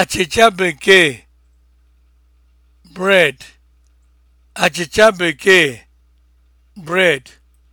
achịcha bekee bekee bread